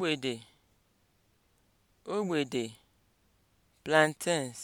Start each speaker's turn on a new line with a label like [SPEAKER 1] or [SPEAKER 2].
[SPEAKER 1] ogbede ogbede plantains